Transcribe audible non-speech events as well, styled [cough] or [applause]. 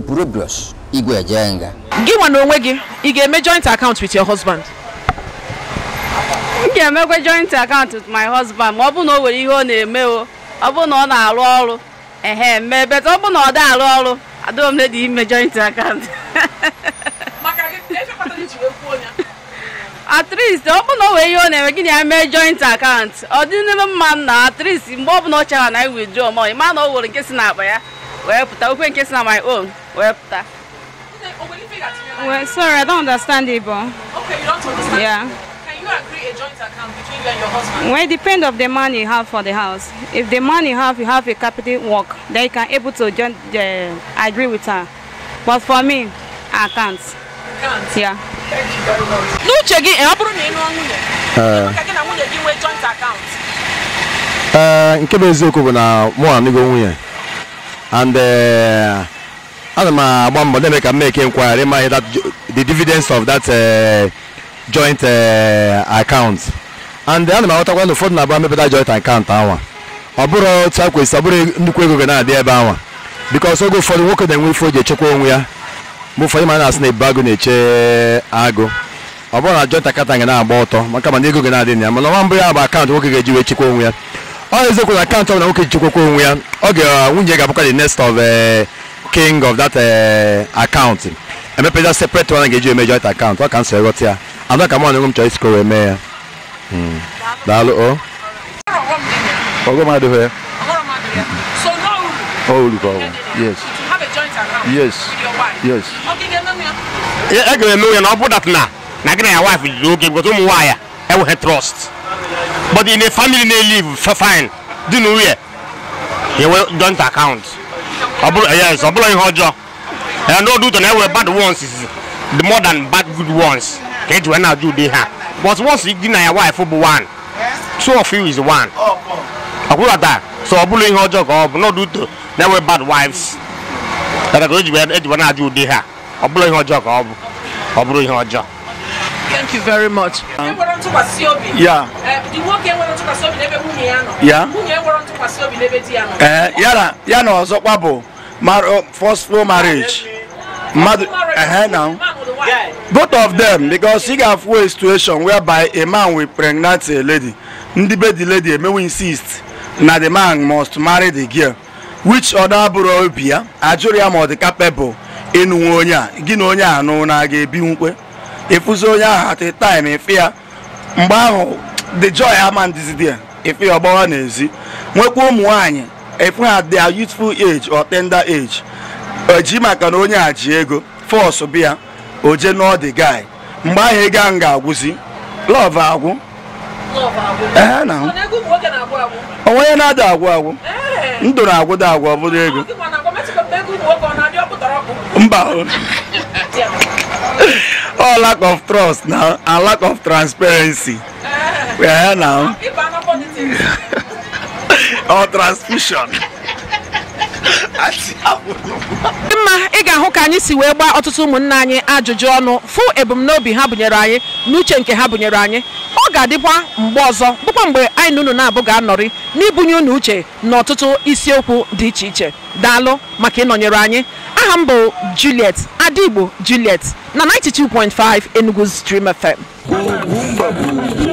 buru puru brush igwe eje nga gị nwa na onwe gị ị ga-eme joint account with your husband m ga-emekwa joint account with my husband ma ọ bụ na o nwere ihe ọ na-eme o ọ bụ na ọ na-arụ ọrụ ehe mee bet ọ bụ na ọ dị arụ ọrụ adịghị m dị ime joint account e at least ọ bụ na o nwere ihe ọ na-eme gị na ya mee joint account ọ dị n'ime mma na at mgbe ọ bụla ọ chara na anyị withdraw money ma na ọ nwere nke si n'akpa ya wee pụta okwe nke si na my own Well, Well, sorry, I don't understand it, but. Okay, you don't understand. Yeah. Can you agree a joint account between you and your husband? Well, it depends of the money you have for the house. If the money you have, you have a capital work, then you can able to join the, uh, agree with her. But for me, I can't. You can't? Yeah. Thank you very much. N'uche gị, ọ bụrụ ị am nwunye, ka gị na nwunye joint account. Uh, in uh, bụ eziokwu bụ na mụ na nụgo and uh, ana m agba mbọ na-eme ka m eke nkwagharị ma the dividends of that eh, joint eh, account and ana m aghọtakwa na ụfọdụ na-abụ mepụta joint account anwa ọ bụrụ otu a kwesịrị ọ bụrụ nnukwu ego ga na-adị ebe anwa because oge ụfọdụ nwoke na-enwe ifo ji echekwa onwe ya mgbe ụfọdụ ma na-asị na ebu agụ na-eche agụ ọ bụrụ na joint account ga na-agba ọtọ maka mana ego ga na-adị na ya mana ọnwa mbụ ya bụ akaụntụ nwoke ga-eji wee chekwa onwe ya ọ na-eziokwu na akaụntụ ọbụla nwoke ji chekwakwa onwe ya ọ ga eh, nwunye ga-abụkwa the next of king of that uh, account emepeza separate one ga-eji eme joint account ọ ka m so eghọta ya anọ ka mụ na m chọrọ isikoro eme ya daalụ o ọgọm adịghị ya o uru ka ọ bụ yes yes yes e ga-eme onye na ọ bụ dat na na gị na ya wife jiri oge because ụmụ nwaanyị enweghị trust but in a family na-elive fine dị n'uye ya nwee joint account ọbụla eh, yes ọbụla ihe ọjọọ na ndị ọdụ ụtọ bad ones is the more than bad good ones ka eji wee na-ajụ ha but once gị na ya wife bụ one two of you is one ọkwụrụ taa so ọ bụla ihe ọjọọ ka ọ bụ n'ọdụ ụtọ na-ewe bad wives dara ka eji wee na-ajụ ụdị ha ọ bụla ihe ọjọọ ka ọ bụ ọ bụrụ ihe ọjọọ Thank you very much. Um, yeah. Yeah. Uh, ya na ọzọkwa bụ Oh, forceful marriage mmadụ na both of them because ị ga-afụ a situation whereby a man will pregnant a lady ndị be the lady emewe insist na the man must marry the girl which ọda bụrụ obi ya ajụrụ ya ma ọ dị capable ịnụnwe onye a gị onye a nụ na ga-ebinwukwe efuzi onye ahụ at the time ife ya mgbe ahụ the joy ah, is there. Ife ya ọgbawa ah, n'ezi nwekwa ụmụ nwaanyị ịfụ ha they their youthful age or tender age eji maka na onye a ji ego fọsụ bịa o jee n'ọ dị guy mgbe ahụ ego ahụ ga-agwụzi lọv agwụ onwe ya na-ada agwụ agwụ eh. ndụ na da agwụ ọ bụrụ ego mba ọ lack of trust na lack of transparency ya eh. eh, na ọ transfusion [laughs] mma ị ga-ahụ ka anyị si wee gbaa ọtụtụ ụmụnna anyị ajụjụ ọnụ fụ ebumnobi ha bunyere anyị n'uche nke ha bụnyere anyị ọ ga-adịkwa mgbe ọzọ bụkwa mgbe anyị na unu na-abụ ga-anọrị n'ibunye unu uche na ọtụtụ isiokwu dị iche iche daalụ maka ịnọnyere anyị aha m bụ Juliet Adigbo Juliet na 92.5 Enugu Stream FM